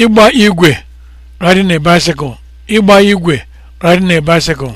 ịgba igwe riding a bicycle igwe riding a bicycle